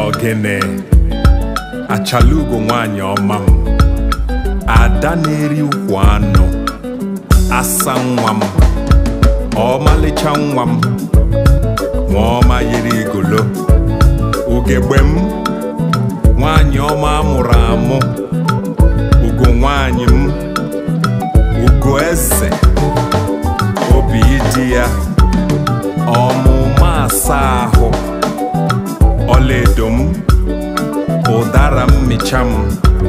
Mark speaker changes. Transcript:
Speaker 1: ogene achalugo nwanyị ọma m ada na-eri ukwu anụ asa nwa m ọmalịcha nwa m nwa ọma yiri igolo ugegbe m nwanyị ọma amụrụ amụ ugo nwanyị m ugo eze obi ịdị ya Cham.